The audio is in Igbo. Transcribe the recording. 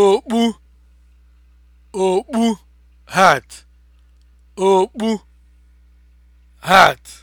okpu okpu hat okpu hat